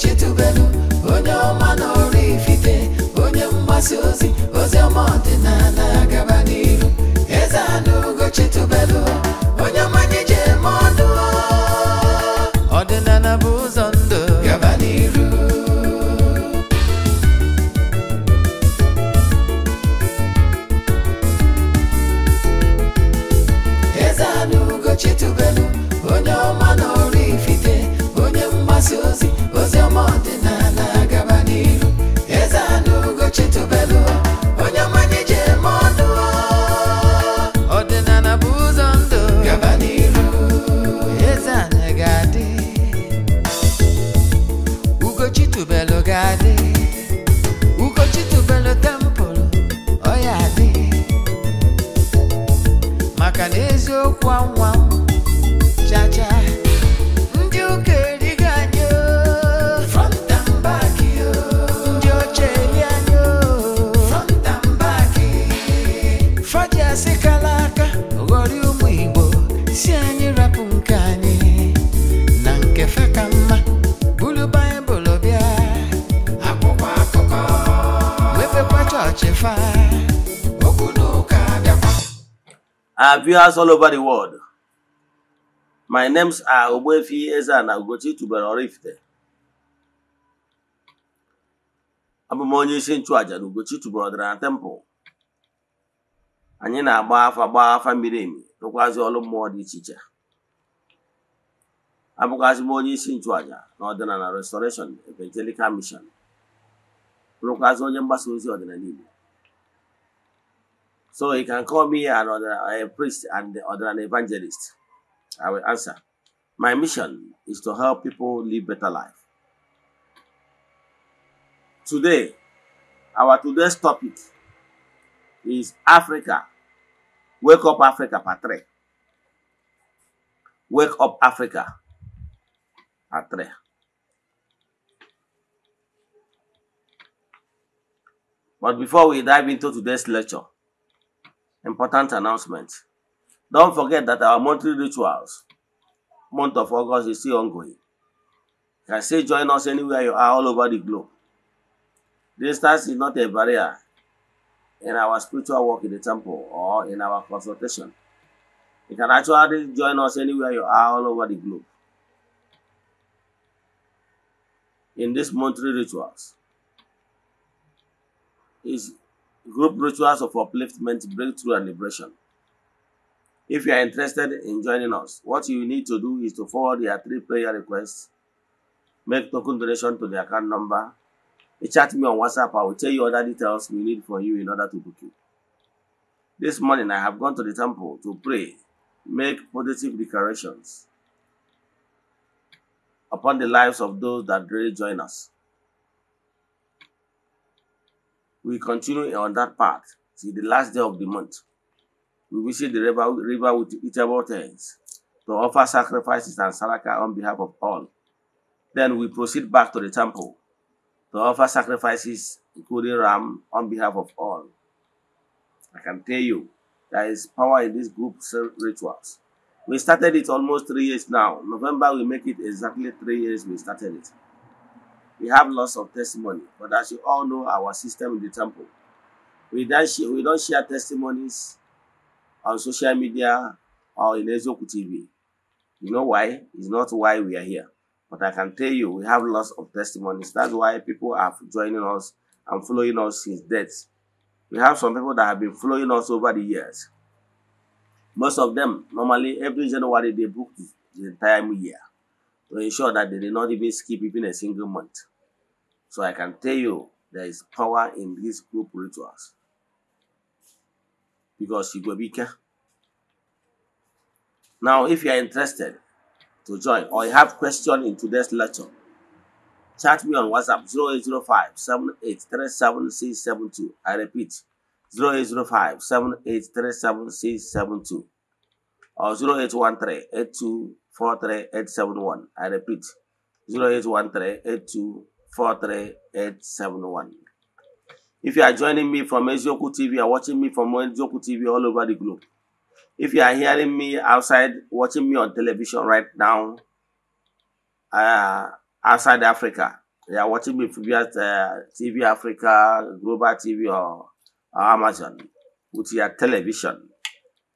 what you do, baby. chefa okwu n'ụka bịakwa our viewers all over the world my names are Ogbuefi Eze-Ana Ugochi Tubelu Oraifite abụ onye isi nchụàjà na Ugochi Tubelu Ọdịnala temple anyị na-agba afa gba afa miri emi rụkwazi ọrụ mmụọ dị iche iche abụkwazị m onye isi nchụàjà na ọdịnala restoration evangelical mission rụkwazi onye mgbasa ozi ọdịnala Igbo So you can call me another uh, a priest and other an evangelist. I will answer. My mission is to help people live better life. Today, our today's topic is Africa. Wake up Africa Patre. Wake up Africa Patre. But before we dive into today's lecture, Important announcement. Don't forget that our monthly rituals, month of August, is still ongoing. You can still join us anywhere you are all over the globe. Distance is not a barrier in our spiritual work in the temple or in our consultation. You can actually join us anywhere you are all over the globe. In this monthly rituals, is group rituals of upliftment, breakthrough, and liberation. If you are interested in joining us, what you need to do is to forward your three prayer requests, make token donation to the account number, you chat me on WhatsApp. I will tell you other details we need from you in order to book you. This morning, I have gone to the temple to pray, make positive declarations upon the lives of those that really join us. we continue on that path till the last day of the month. We visit the river, river with eatable things to offer sacrifices and saraka on behalf of all. Then we proceed back to the temple to offer sacrifices, including ram, on behalf of all. I can tell you, there is power in these group rituals. We started it almost three years now. November, we make it exactly three years we started it. We have lots of testimony, but as you all know, our system in the temple, we don't share, we don't share testimonies on social media or in Ezoku TV. You know why? It's not why we are here. But I can tell you, we have lots of testimonies. That's why people are joining us and following us since death. We have some people that have been following us over the years. Most of them, normally every January, they book the entire year. to ensure that they did not even skip even a single month. So I can tell you there is power in these group rituals. Because you go be careful. Now, if you are interested to join or you have question in today's lecture, chat me on WhatsApp 0805 I repeat, 0805 or 0813 82 43871. I repeat 081382 If you are joining me from Ezioku TV, you are watching me from Ezioku TV all over the globe. If you are hearing me outside, watching me on television right now, uh, outside Africa, you are watching me via uh, TV Africa, Global TV, or, or Amazon with your television.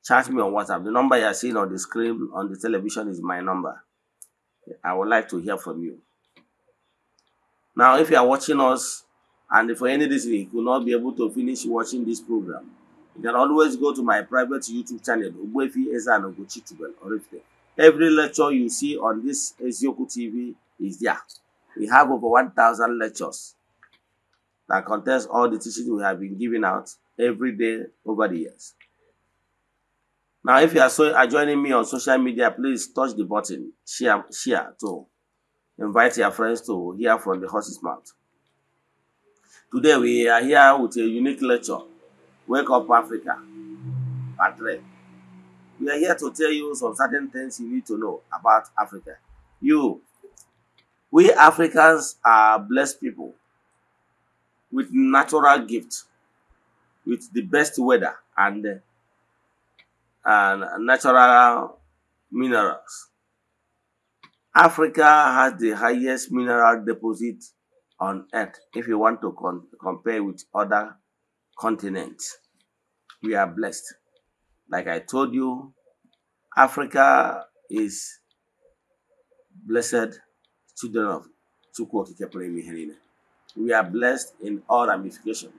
Charge me on WhatsApp. The number you are seeing on the screen on the television is my number. I would like to hear from you. Now, if you are watching us and for any reason you could not be able to finish watching this program, you can always go to my private YouTube channel, Ogbefi Ezan Ogochitubel, Every lecture you see on this Ezioku TV is there. We have over 1,000 lectures that contains all the teachings we have been giving out every day over the years. Now, if you are so are joining me on social media, please touch the button, share, share to invite your friends to hear from the horse's mouth. Today we are here with a unique lecture, Wake Up Africa, Patre, We are here to tell you some certain things you need to know about Africa. You, we Africans are blessed people with natural gifts, with the best weather and and natural minerals. Africa has the highest mineral deposit on earth if you want to con compare with other continents. We are blessed. Like I told you, Africa is blessed children of We are blessed in all ramifications.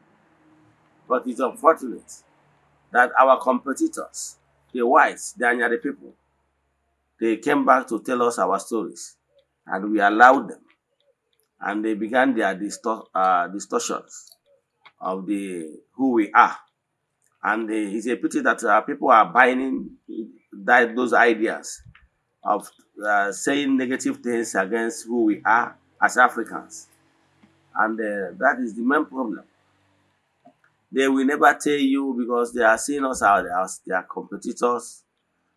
But it's unfortunate that our competitors the whites, the Anyari people, they came back to tell us our stories, and we allowed them. And they began their distor uh, distortions of the who we are. And uh, it's a pity that uh, people are buying that, those ideas of uh, saying negative things against who we are as Africans. And uh, that is the main problem. They will never tell you because they are seeing us as their competitors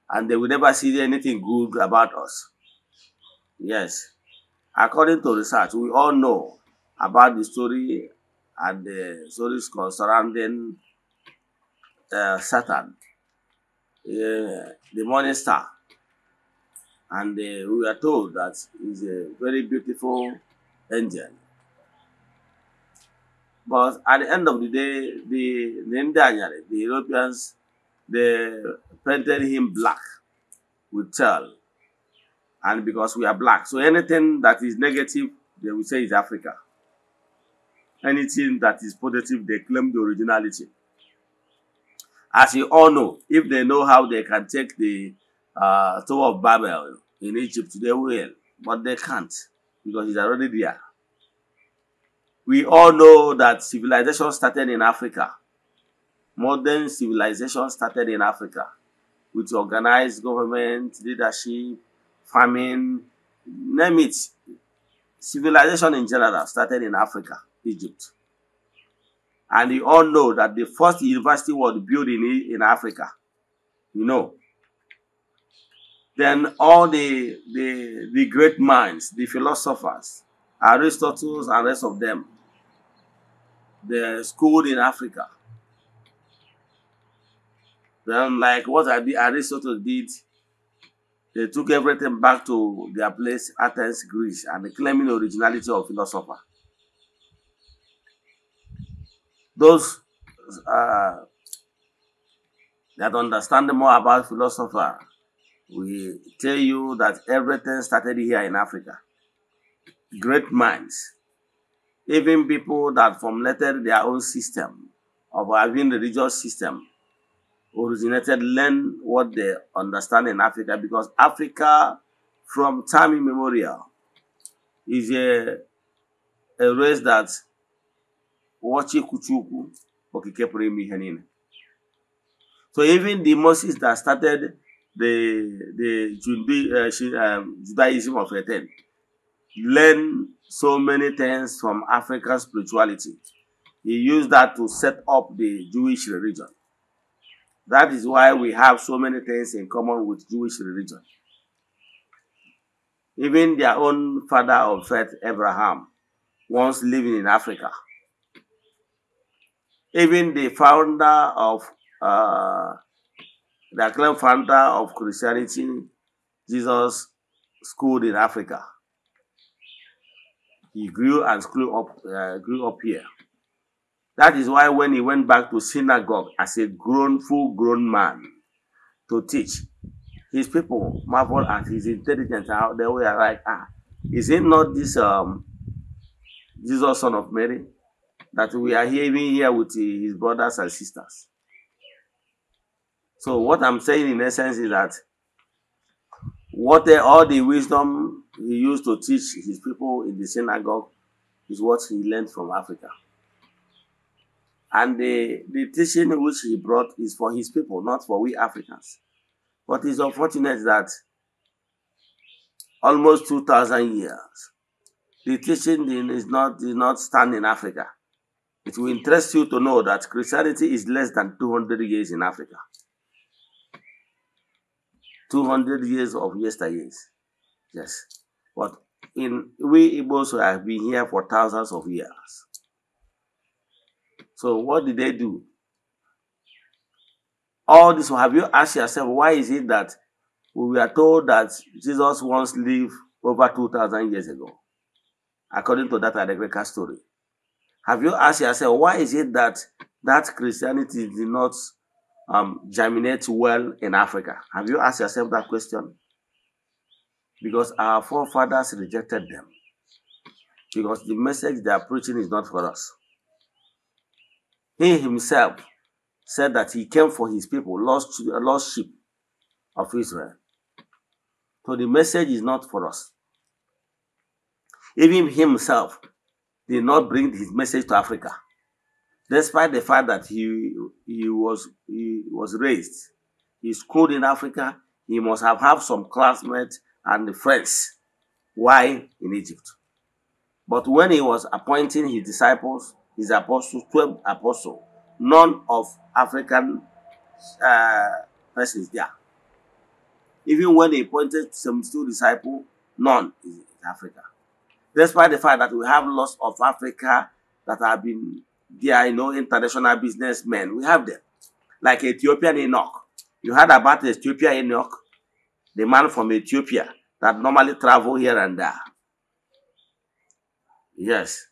and they will never see anything good about us. Yes. According to research, we all know about the story and the stories surrounding uh, Satan, uh, the morning star. And uh, we are told that he's a very beautiful angel. But at the end of the day, the Daniel, the Europeans, they painted him black with tell. And because we are black. So anything that is negative, they will say is Africa. Anything that is positive, they claim the originality. As you all know, if they know how they can take the uh, Tower of Babel in Egypt, they will. But they can't because it's already there we all know that civilization started in Africa. Modern civilization started in Africa with organized government, leadership, farming name it. Civilization in general started in Africa, Egypt. And you all know that the first university was built in, in Africa. You know. Then all the, the, the great minds, the philosophers, Aristotle and rest of them, they're schooled in Africa. Then, like what I did, Aristotle did, they took everything back to their place, Athens, Greece, and claiming originality of philosopher. Those uh, that understand more about philosopher will tell you that everything started here in Africa. Great minds even people that formulated their own system of having religious system originated learn what they understand in Africa because Africa from time immemorial is a, a race that wachi kuchuku okikepụrụ so even the Moses that started the the uh, Judaism of time learn so many things from African spirituality. He used that to set up the Jewish religion. That is why we have so many things in common with Jewish religion. Even their own father of faith, Abraham, once living in Africa. Even the founder of uh, the acclaimed founder of Christianity, Jesus, schooled in Africa he grew and grew up, uh, grew up here. That is why when he went back to synagogue as a grown, full-grown man to teach, his people marvel at his intelligence. How they were like, ah, is it not this um, Jesus, son of Mary, that we are hearing here with his brothers and sisters? So what I'm saying in essence is that what all the wisdom he used to teach his people in the synagogue is what he learned from Africa. And the, the teaching which he brought is for his people, not for we Africans. But it's unfortunate that almost 2,000 years, the teaching is not, did not stand in Africa. It will interest you to know that Christianity is less than 200 years in Africa. 200 years of yesteryears. Yes. But in we Igbos have been here for thousands of years. So what did they do? All this, have you asked yourself, why is it that we were told that Jesus once lived over 2,000 years ago, according to that Adegreka story? Have you asked yourself, why is it that that Christianity did not um, germinate well in Africa? Have you asked yourself that question? because our forefathers rejected them. Because the message they are preaching is not for us. He himself said that he came for his people, lost, lost sheep of Israel. So the message is not for us. Even himself did not bring his message to Africa, despite the fact that he, he, was, he was raised. He schooled in Africa. He must have had some classmates and the friends while in Egypt. But when he was appointing his disciples, his apostles, 12 apostles, none of African uh, persons there. Even when he appointed 72 disciples, none is in Africa. Despite the fact that we have lots of Africa that have been there, you know, international businessmen, we have them. Like Ethiopian Enoch. You heard about Ethiopian Enoch? the man from Ethiopia that normally travel here and there. Yes.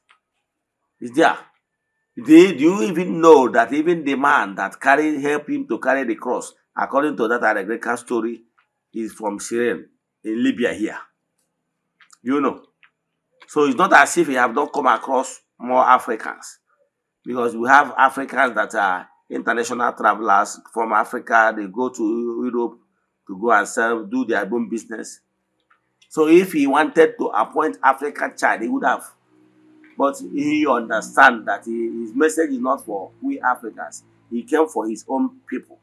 Is there. Did you even know that even the man that carried helped him to carry the cross, according to that Greek story, is from Syrian in Libya here? You know. So it's not as if we have not come across more Africans. Because we have Africans that are international travelers from Africa, they go to Europe, to go and sell, do their own business. So if he wanted to appoint African child, he would have. But he understand that he, his message is not for we Africans. He came for his own people.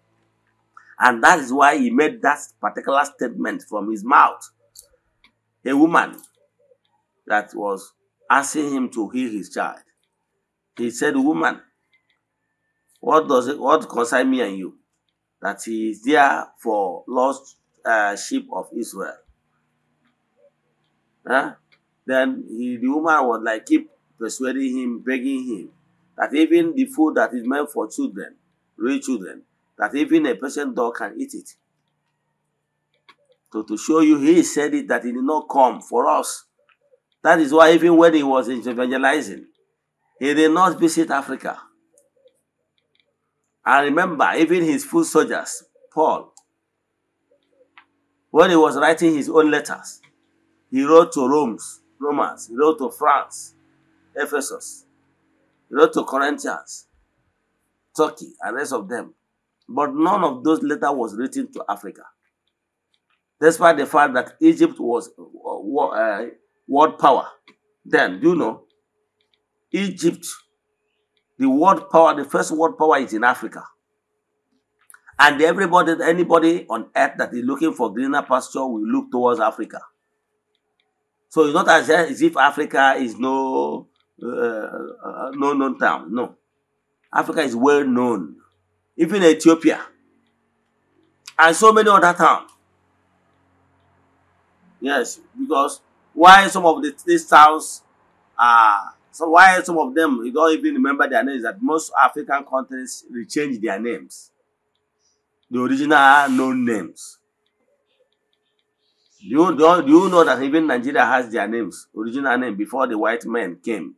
And that is why he made that particular statement from his mouth. A woman that was asking him to heal his child. He said, woman, what does it, what concern me and you? that he is there for lost uh, sheep of Israel. Huh? Then he, the woman would like keep persuading him, begging him that even the food that is meant for children, real children, that even a person dog can eat it. So to show you, he said it that he did not come for us. That is why even when he was evangelizing, he did not visit Africa. And remember, even his foot soldiers, Paul, when he was writing his own letters, he wrote to Romans, Romans, he wrote to France, Ephesus, he wrote to Corinthians, Turkey, and rest of them. But none of those letters was written to Africa. Despite the fact that Egypt was uh, uh world power. Then, you know, Egypt the world power, the first world power is in Africa. And everybody, anybody on earth that is looking for greener pasture will look towards Africa. So it's not as if Africa is no uh, uh, no known town. No. Africa is well known. Even Ethiopia. And so many other towns. Yes, because why some of the, these towns are so why some of them you don't even remember their names? That most African countries change their names. The original are no names. Do you, do, do you know that even Nigeria has their names, original name, before the white men came?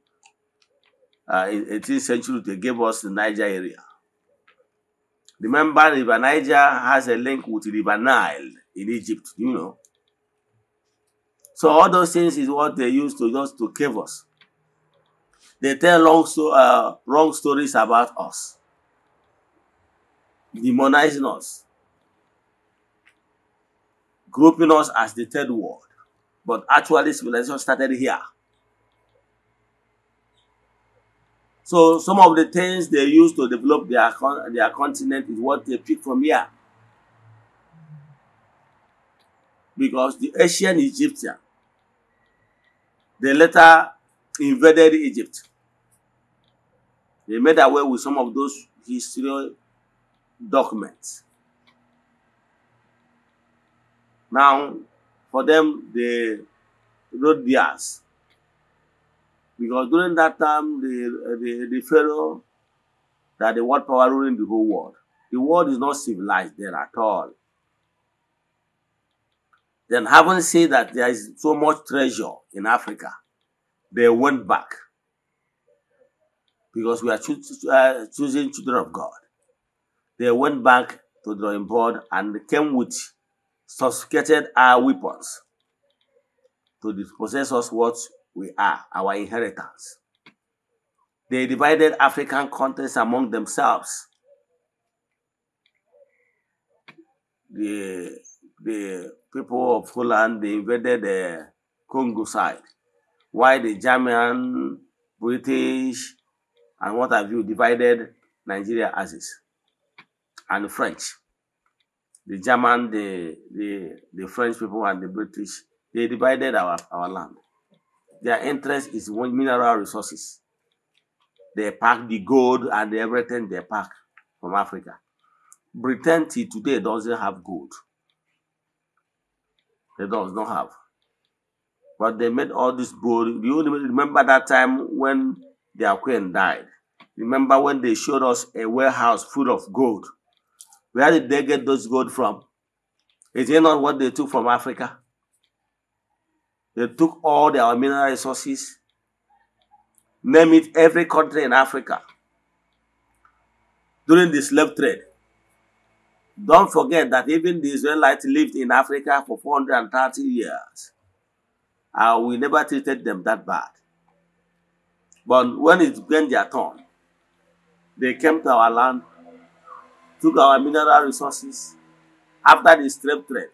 Uh, in 18th century, they gave us the Niger area. Remember, River Niger has a link with River Nile in Egypt, you know. So all those things is what they used to just to cave us. They tell long uh, wrong stories about us, demonizing us, grouping us as the third world. But actually, civilization started here. So some of the things they use to develop their, their continent is what they pick from here. Because the ancient Egyptian, they later invaded Egypt. They made away with some of those historical documents. Now, for them, they wrote theirs. Because during that time, the, the, the Pharaoh, that the world power ruling the whole world. The world is not civilized there at all. Then having said that there is so much treasure in Africa, they went back because we are cho- uh, choosing children of God. They went back to the drawing board and came with sophisticated our uh, weapons to dispossess us what we are, our inheritance. They divided African countries among themselves. The, the people of Holland, they invaded the Congo side, while the German, British, and what have you divided Nigeria as is. And the French, the German, the, the, the French people and the British, they divided our, our land. Their interest is one mineral resources. They pack the gold and everything they pack from Africa. Britain till today doesn't have gold. They does not have. But they made all this gold. You remember that time when their queen died. Remember when they showed us a warehouse full of gold? Where did they get those gold from? Is it not what they took from Africa? They took all their mineral resources. Name it every country in Africa. During the slave trade. Don't forget that even the Israelites lived in Africa for 430 years. And we never treated them that bad. But when it when their turn, they came to our land, took our mineral resources. After the slave trade,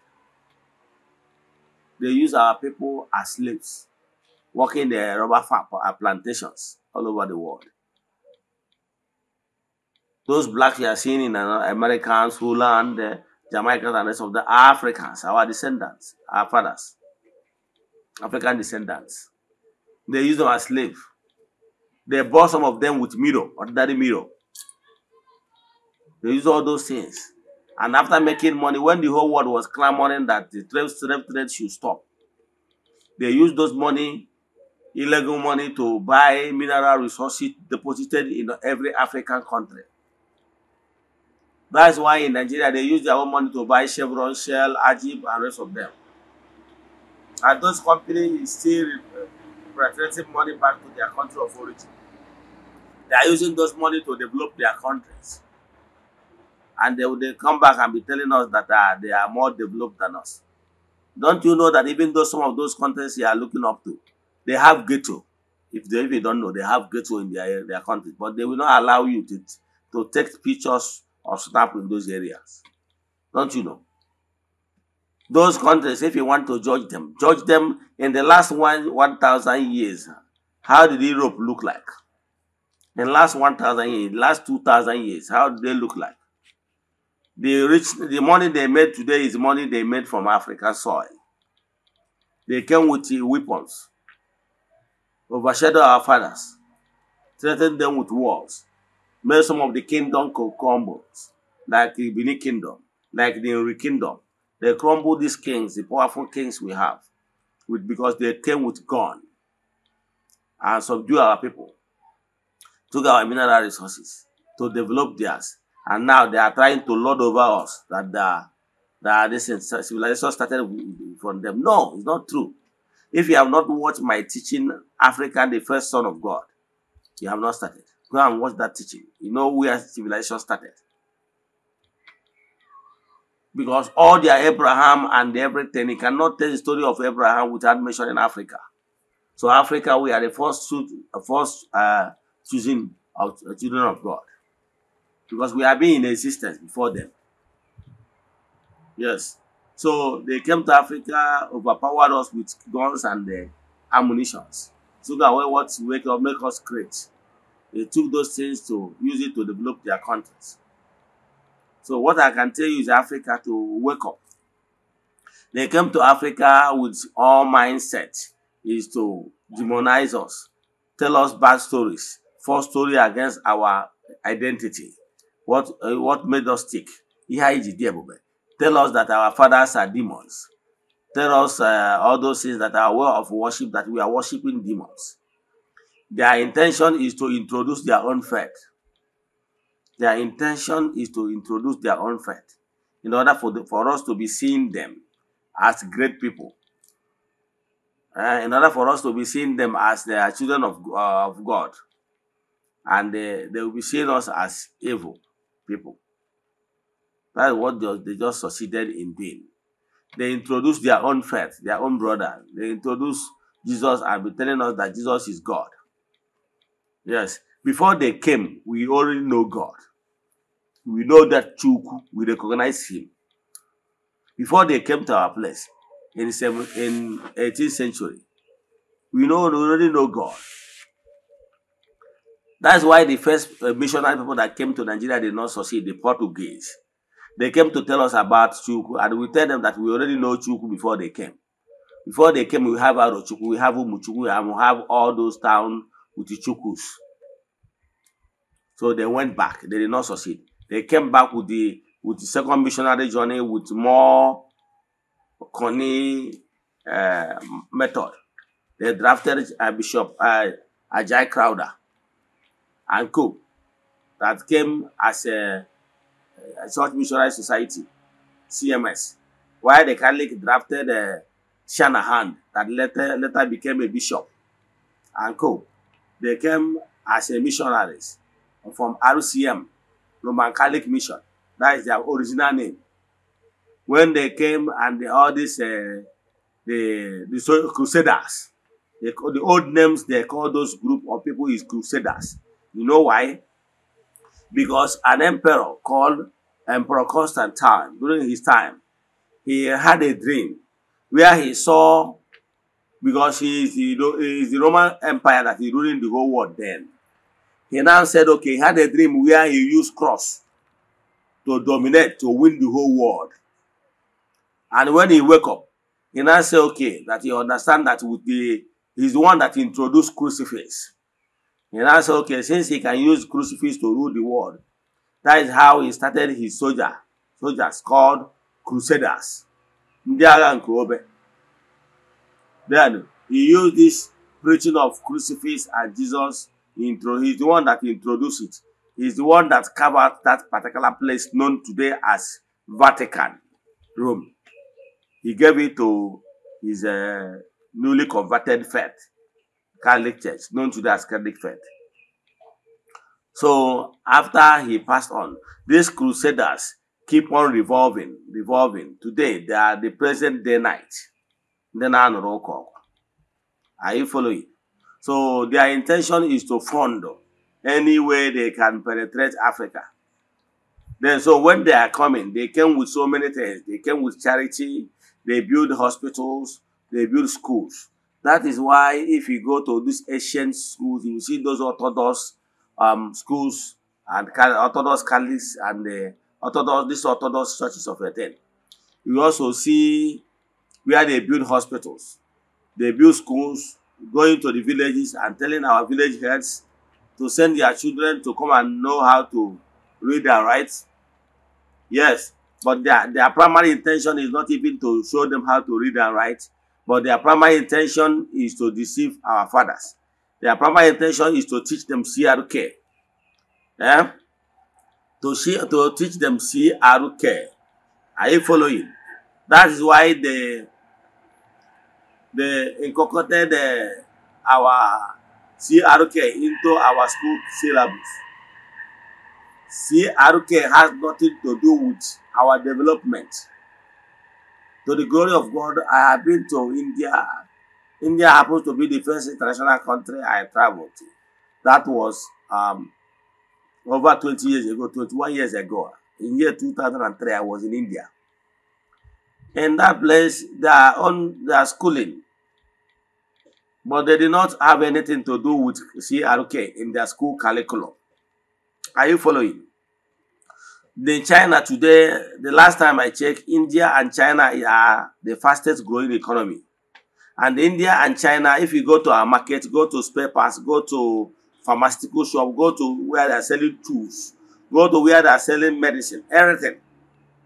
they used our people as slaves, working the rubber farm plantations all over the world. Those blacks you are seeing in Americans, land, the Jamaicans, and rest of the Africans, our descendants, our fathers, African descendants, they used them as slaves They bought some of them with mirror, ordinary mirror. They use all those things. And after making money, when the whole world was clamoring that the slave slave trade should stop, they used those money, illegal money, to buy mineral resources deposited in every African country. That's why in Nigeria they use their own money to buy Chevron, Shell, Ajib, and rest of them. And those companies still returning money back to their country of origin. They are using those money to develop their countries. And they will come back and be telling us that uh, they are more developed than us. Don't you know that even though some of those countries you are looking up to, they have ghetto. If they even don't know, they have ghetto in their, their country. But they will not allow you to, to take pictures or snap in those areas. Don't you know? Those countries, if you want to judge them, judge them in the last one, 1,000 years. How did Europe look like? in last 1,000 years, last 2,000 years, how do they look like? The, rich, the money they made today is money they made from African soil. They came with weapons, overshadowed our fathers, threatened them with wars, made some of the kingdom crumble, like the Benin kingdom, like the Uri kingdom. They crumbled these kings, the powerful kings we have, with, because they came with gun and subdued our people took our mineral resources to develop theirs. And now they are trying to lord over us that the, that this civilization started from them. No, it's not true. If you have not watched my teaching, Africa, the first son of God, you have not started. Go and watch that teaching. You know where civilization started. Because all their Abraham and everything, you cannot tell the story of Abraham without mentioning Africa. So Africa, we are the first, first uh, choosing our children of God. Because we have been in existence before them. Yes. So they came to Africa, overpowered us with guns and uh, So that we what to wake up, make us great. They took those things to use it to develop their countries. So what I can tell you is Africa to wake up. They came to Africa with all mindset is to demonize us, tell us bad stories, false story against our identity. What, uh, what made us stick? Tell us that our fathers are demons. Tell us uh, all those things that are aware of worship, that we are worshiping demons. Their intention is to introduce their own faith. Their intention is to introduce their own faith in order for, the, for us to be seeing them as great people. Uh, in order for us to be seeing them as the children of, uh, of God and they, they will be seeing us as evil people. That's what they, they just succeeded in doing. They introduced their own faith, their own brother. They introduced Jesus and be telling us that Jesus is God. Yes. Before they came, we already know God. We know that Chuku, we recognize him. Before they came to our place in, seven, in 18th century, we know we already know God. That's why the first uh, missionary people that came to Nigeria did not succeed, the Portuguese. They came to tell us about Chuku, and we tell them that we already know Chuku before they came. Before they came, we have Arochuku, we have Umuchuku, and we have all those towns with the Chukus. So they went back. They did not succeed. They came back with the with the second missionary journey with more Connie uh, method. They drafted uh, Bishop uh, Ajay Crowder and Co. that came as a, a Church Missionary Society, CMS, while the Catholic drafted uh, Shanahan that later, later became a bishop and Co. They came as a missionaries from RCM, Roman Catholic Mission. That is their original name. When they came and the, all these uh, the, the crusaders, the, the old names they call those group of people is crusaders. You know why? Because an emperor called Emperor Constantine, during his time, he had a dream where he saw, because he is, the, he is the Roman Empire that is ruling the whole world then. He now said, okay, he had a dream where he used cross to dominate, to win the whole world. And when he woke up, he now said, okay, that he understand that with the, he's the one that introduced crucifix. And I said, okay, since he can use crucifix to rule the world, that is how he started his soldier, soldiers called crusaders. Ndị agha nke obe. Then he used this preaching of crucifix and Jesus, intro, he's the one that introduced it. He's the one that covered that particular place known today as Vatican, Rome. He gave it to his uh, newly converted faith. Catholic Church, known to as Catholic Faith. So after he passed on, these crusaders keep on revolving, revolving. Today, they are the present day night. Then I Are you following? So their intention is to fund any way they can penetrate Africa. Then so when they are coming, they came with so many things. They came with charity, they build hospitals, they build schools. That is why if you go to these ancient schools, you see those Orthodox um, schools and Orthodox Catholics and the Orthodox, these Orthodox churches of Eden. You also see where they build hospitals. They build schools, going to the villages and telling our village heads to send their children to come and know how to read and write. Yes, but their, their primary intention is not even to show them how to read and write. But their primary intention is to deceive our fathers. Their primary intention is to teach them CRK. Yeah, eh? To, see, to teach them CRK. Are you following? That is why they, they incorporated the, our CRK into our school syllabus. CRK has nothing to do with our development. To the glory of God, I have been to India. India happens to be the first international country I traveled to. That was um, over 20 years ago, 21 years ago. In year 2003, I was in India. In that place, they are on their schooling. But they did not have anything to do with CRK in their school curriculum. Are you following? the China today, the last time I checked, India and China are the fastest growing economy. And India and China, if you go to our market, go to spare parts, go to pharmaceutical shop, go to where they're selling tools, go to where they're selling medicine, everything.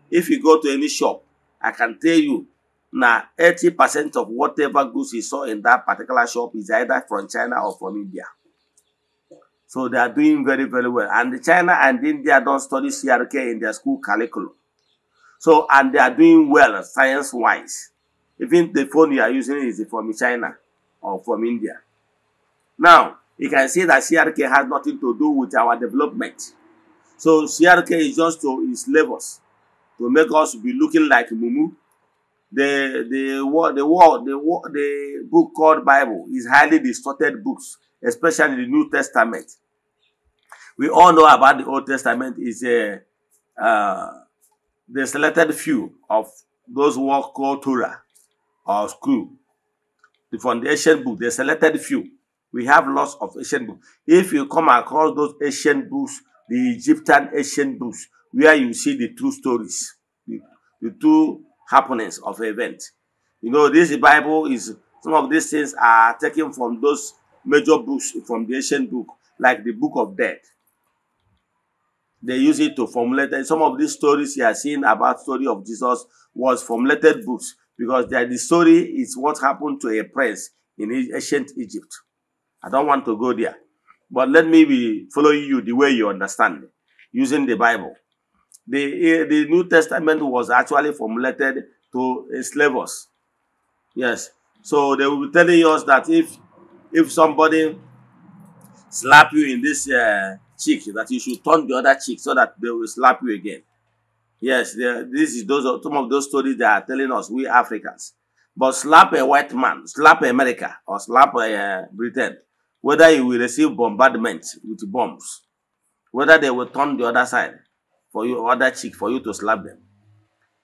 If you go to any shop, I can tell you now 80% of whatever goods you saw in that particular shop is either from China or from India. So they are doing very, very well. And China and India don't study CRK in their school curriculum. So, and they are doing well science-wise. Even the phone you are using is from China or from India. Now, you can see that CRK has nothing to do with our development. So CRK is just to enslave us, to make us be looking like Mumu. The the what the world the the book called Bible is highly distorted books, especially the New Testament. We all know about the Old Testament is a uh, uh, the selected few of those who are called Torah or school. The foundation book, the selected few. We have lots of ancient books. If you come across those ancient books, the Egyptian ancient books, where you see the true stories, the, the happenings of events. You know, this Bible is some of these things are taken from those major books from the ancient book, like the Book of Death, they use it to formulate. And some of these stories you are seeing about story of Jesus was formulated books because the story is what happened to a prince in ancient Egypt. I don't want to go there. But let me be following you the way you understand, using the Bible. The, eh, the New Testament was actually formulated to slavers Yes. So they will be telling us that if if somebody slap you in this uh, cheek that you should turn the other cheek so that they will slap you again. Yes, this is those some of those stories they are telling us, we Africans. But slap a white man, slap America, or slap uh, Britain, whether you will receive bombardment with bombs, whether they will turn the other side for your other cheek for you to slap them.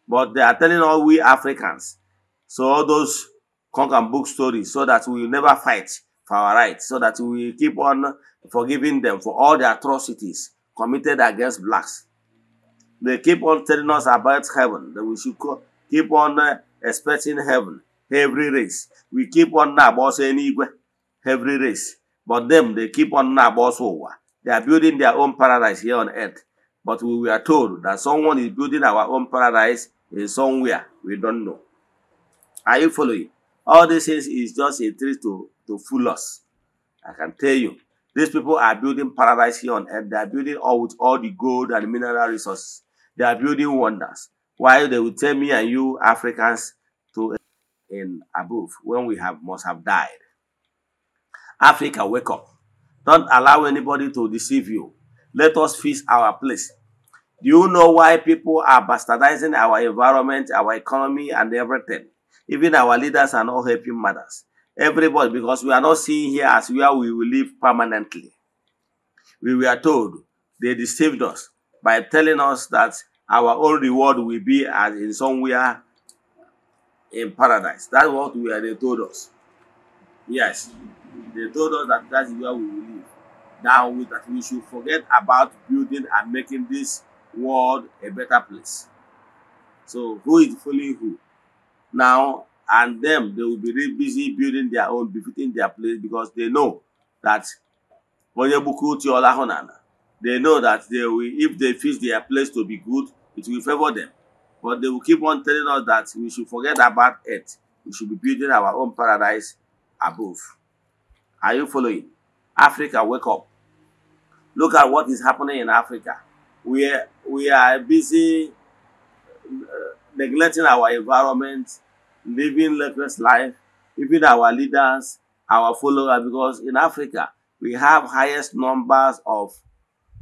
But they are telling all we Africans, so all those conk book stories, so that we will never fight for our rights so that we keep on forgiving them for all the atrocities committed against blacks. They keep on telling us about heaven, that we should keep on uh, expecting heaven, every race. We keep on nabos anywhere, every race. But them, they keep on boss, over. They are building their own paradise here on earth. But we were told that someone is building our own paradise in somewhere. We don't know. Are you following? All these things is just a trick to, to fool us. I can tell you. These people are building paradise here on earth. They are building all with all the gold and mineral resources. They are building wonders. While they will tell me and you Africans to in above when we have must have died. Africa, wake up. Don't allow anybody to deceive you. Let us fix our place. Do you know why people are bastardizing our environment, our economy, and everything? Even our leaders are not helping matters. Everybody, because we are not seeing here as where we will live permanently. We were told they deceived us by telling us that our own reward will be as in somewhere in paradise. That's what we are, they told us. Yes, they told us that that's where we will live. Now we, that we should forget about building and making this world a better place. So who is fooling who? now and them they will be really busy building their own befitting their place because they know that they know that they will if they fix their place to be good it will favor them but they will keep on telling us that we should forget about it we should be building our own paradise above are you following africa wake up look at what is happening in africa we are, we are busy uh, neglecting our environment, living reckless life, even our leaders, our followers, because in Africa, we have highest numbers of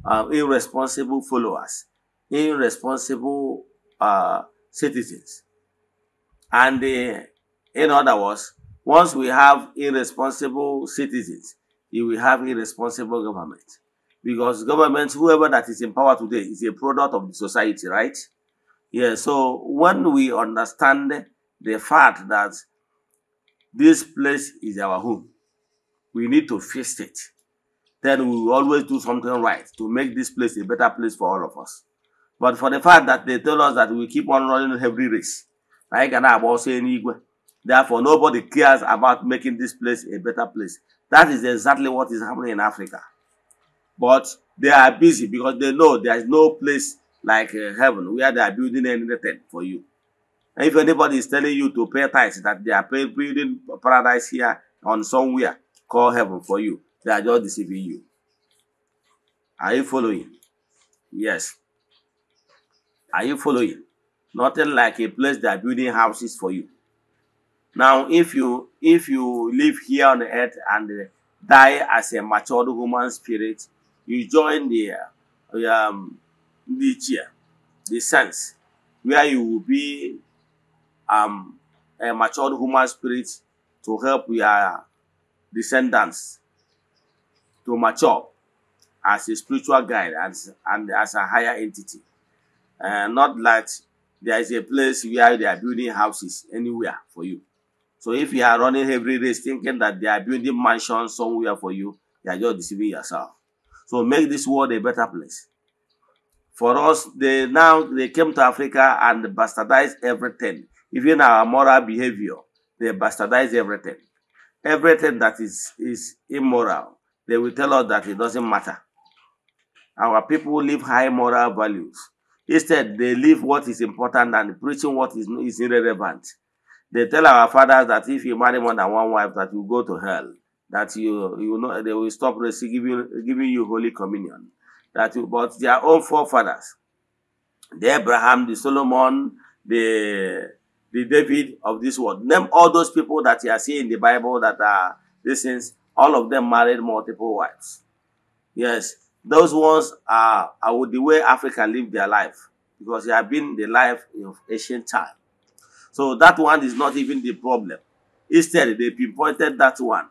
uh, irresponsible followers, irresponsible uh, citizens. And uh, in other words, once we have irresponsible citizens, you will have irresponsible government. Because government, whoever that is in power today, is a product of the society, right? Yeah, so when we understand the fact that this place is our home, we need to fix it. Then we will always do something right to make this place a better place for all of us. But for the fact that they tell us that we keep on running every race, like an about saying Igwe, therefore nobody cares about making this place a better place. That is exactly what is happening in Africa. But they are busy because they know there is no place like uh, heaven where they are building anything for you. And if anybody is telling you to pay tithes that they are building paradise here on somewhere called heaven for you, they are just deceiving you. Are you following? Yes. Are you following? Nothing like a place that building houses for you. Now, if you if you live here on the earth and uh, die as a matured human spirit, you join the um, nature, the sense, where you will be um, a matured human spirit to help your descendants to mature as a spiritual guide and, and as a higher entity. Uh, not that there is a place where they are building houses anywhere for you. So if you are running every race thinking that they are building mansions somewhere for you, you are just deceiving yourself. So make this world a better place. For us, they now they came to Africa and bastardized everything, even our moral behavior. They bastardized everything. Everything that is is immoral, they will tell us that it doesn't matter. Our people live high moral values. Instead, they live what is important and preaching what is, is irrelevant. They tell our fathers that if you marry more than one wife, that you go to hell. That you you know they will stop giving giving you holy communion. that but their own forefathers, the Abraham, the Solomon, the, the David of this world. Name all those people that you are seeing in the Bible that are this is all of them married multiple wives. Yes, those ones are, are the way Africa live their life because they have been the life of ancient time. So that one is not even the problem. Instead, they pinpointed that one.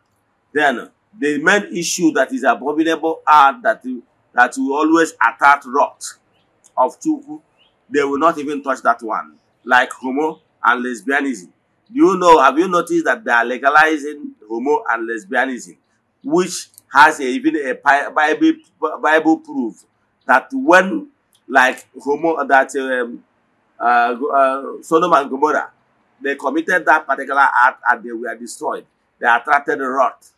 Then the main issue that is abominable are that that will always attack rot of Chukwu, they will not even touch that one, like homo and lesbianism. Do you know, have you noticed that they are legalizing homo and lesbianism, which has a, even a Bible, Bible proof that when, like homo, that um, uh, uh, Sodom and Gomorrah, they committed that particular act and they were destroyed. They attracted the wrath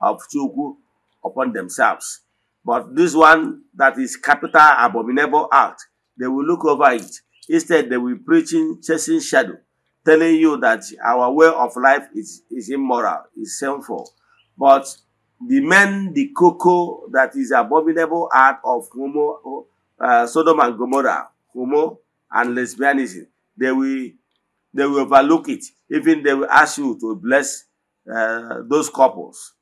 of Chukwu upon themselves. But this one that is capital abominable act, they will look over it. Instead, they will preaching chasing shadow, telling you that our way of life is, is immoral, is sinful. But the men, the cocoa that is abominable act of homo, uh, Sodom and Gomorrah, homo and lesbianism, they will they will overlook it. Even they will ask you to bless uh, those couples.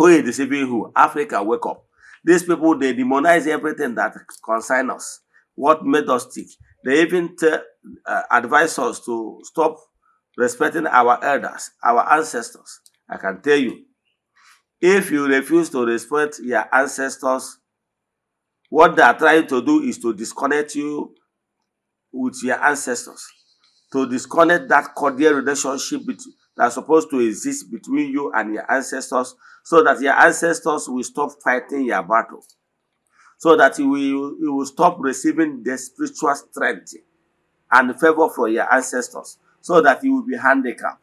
Who is deceiving who? Africa, wake up. These people, they demonize everything that concern us. What made us tick. They even uh, advise us to stop respecting our elders, our ancestors. I can tell you, if you refuse to respect your ancestors, what they are trying to do is to disconnect you with your ancestors, to disconnect that cordial relationship that's supposed to exist between you and your ancestors, so that your ancestors will stop fighting your battle, so that you will, you will stop receiving the spiritual strength and favor from your ancestors, so that you will be handicapped.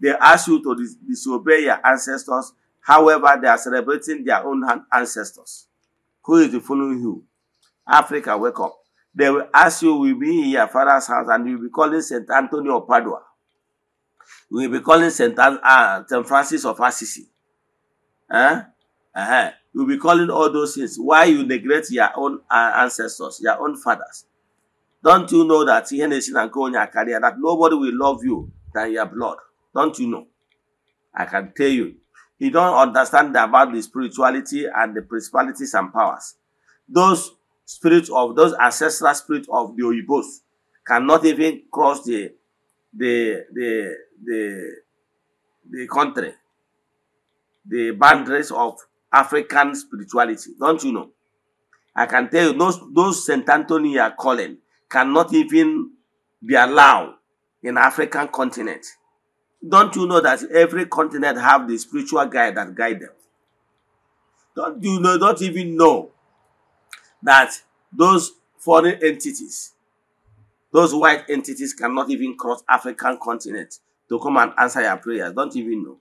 They ask you to dis disobey your ancestors, however, they are celebrating their own ancestors. Who is following you? Africa, wake up. They will ask you, will be in your father's house, and you will be calling St. Anthony of Padua. We will be calling St. An uh, Francis of Assisi. Eh? Uh-huh. You'll be calling all those things. Why you neglect your own uh, ancestors, your own fathers? Don't you know that Henderson and go on your career, that nobody will love you than your blood? Don't you know? I can tell you. You don't understand about the spirituality and the principalities and powers. Those spirits of those ancestral spirits of the Oyibos cannot even cross the the the the the country the boundaries of African spirituality, don't you know? I can tell you, those, those St. Anthony are calling cannot even be allowed in African continent. Don't you know that every continent have the spiritual guide that guide them? Don't you know, don't even know that those foreign entities, those white entities cannot even cross African continent to come and answer your prayers. Don't even know.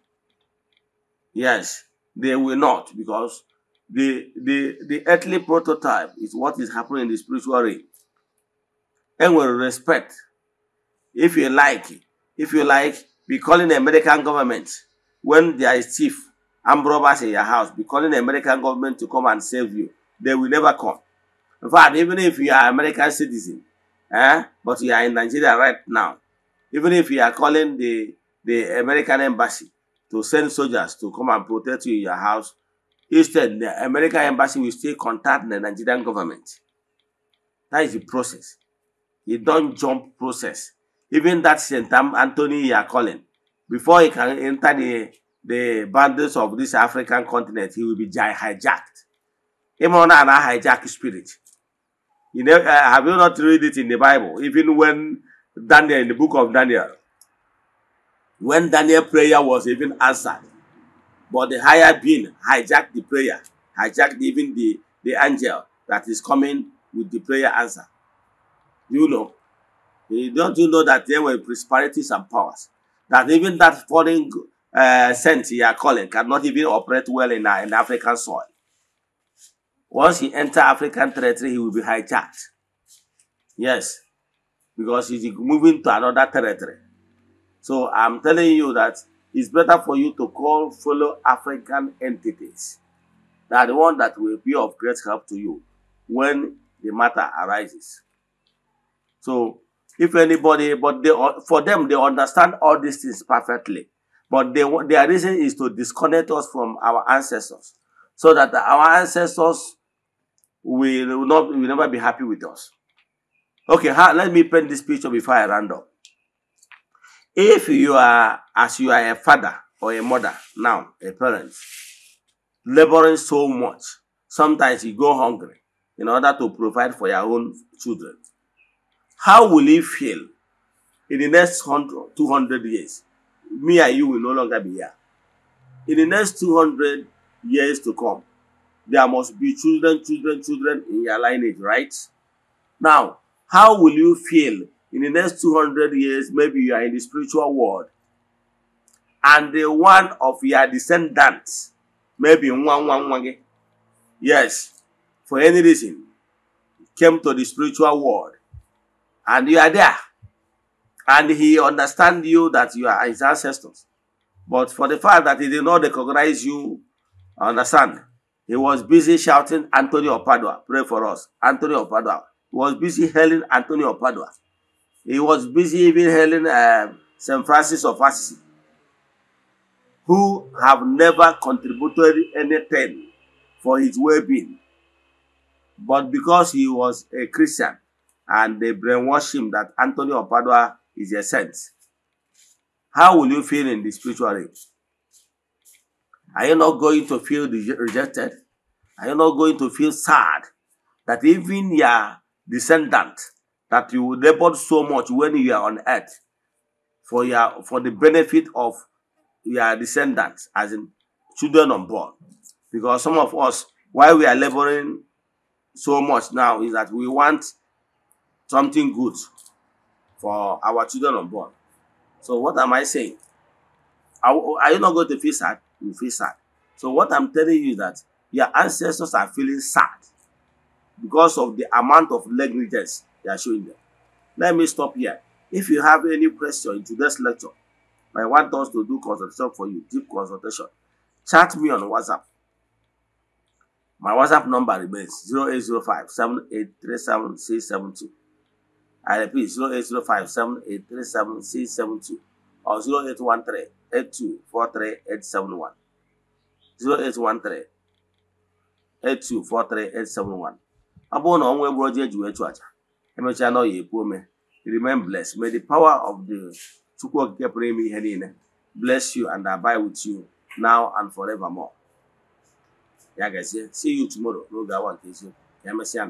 Yes, they will not because the, the, the earthly prototype is what is happening in the spiritual realm. And with respect, if you like, if you like, be calling the American government when there is thief and robbers in your house, be calling the American government to come and save you. They will never come. In fact, even if you are American citizen, eh, but you are in Nigeria right now, even if you are calling the, the American embassy, to send soldiers to come and protect you in your house. Instead, the American embassy will still contact the Nigerian government. That is the process. You don't jump process. Even that St. Anthony you are calling, before he can enter the, the boundaries of this African continent, he will be hijacked. Even and I hijack spirit. You know, uh, have you not read it in the Bible? Even when Daniel, in the book of Daniel, when Daniel's prayer was even answered. But the higher being hijacked the prayer, hijacked even the, the angel that is coming with the prayer answer. You know, eh, don't you know that there were prosperities and powers? That even that foreign uh, saint you are calling cannot even operate well in an uh, African soil. Once he enter African territory, he will be hijacked. Yes, because he's moving to another territory. So I'm telling you that it's better for you to call fellow African entities. They are the one that will be of great help to you when the matter arises. So if anybody, but they, for them, they understand all these things perfectly. But they, their reason is to disconnect us from our ancestors so that our ancestors will, not, will never be happy with us. Okay, let me paint this picture before I round up. if you are as you are a father or a mother now a parent laboring so much sometimes you go hungry in order to provide for your own children how will you feel in the next 100 200 years me and you will no longer be here in the next 200 years to come there must be children children children in your lineage right now how will you feel in the next 200 years, maybe you are in the spiritual world, and the one of your descendants, maybe one, one, one, yes, for any reason, came to the spiritual world, and you are there, and he understand you that you are his ancestors. But for the fact that he did not recognize you, understand, he was busy shouting, Antonio Padua, pray for us. Antonio Padua. He was busy hailing Antonio Padua. He was busy even hailing uh, um, St. Francis of Assisi, who have never contributed anything for his well-being. But because he was a Christian, and they brainwashed him that Anthony of Padua is a saint, how will you feel in the spiritual realm? Are you not going to feel rejected? Are you not going to feel sad that even your descendant that you labored so much when you are on earth for your for the benefit of your descendants, as in children unborn. Because some of us, why we are laboring so much now is that we want something good for our children unborn. So what am I saying? Are, are you not going to feel sad? You feel sad. So what I'm telling you is that your ancestors are feeling sad because of the amount of negligence They are showing them. Let me stop here. If you have any question into this lecture, I want us to do consultation for you, deep consultation, chat me on WhatsApp. My WhatsApp number remains 0805 7837672. I repeat 0805 7837672 or 0813 8243871. 0813 8243871. Abụ na ọnwa egburu ọjọ ejiwe chụ aja emechaa na ọ ya epu ome remain bless may the power of the chukwu okike pụrụ ime ihe niile bless you and abide with you now and forever more. ya gazie see you tomorrow n'oge awa nke eziokwu ka emesịa